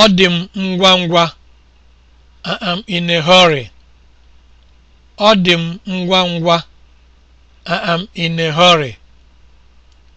Ọ dị m ngwa ngwa. am am in a hurry.